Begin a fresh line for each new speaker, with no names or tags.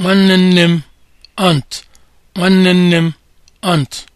nwanne nne m ant. aunt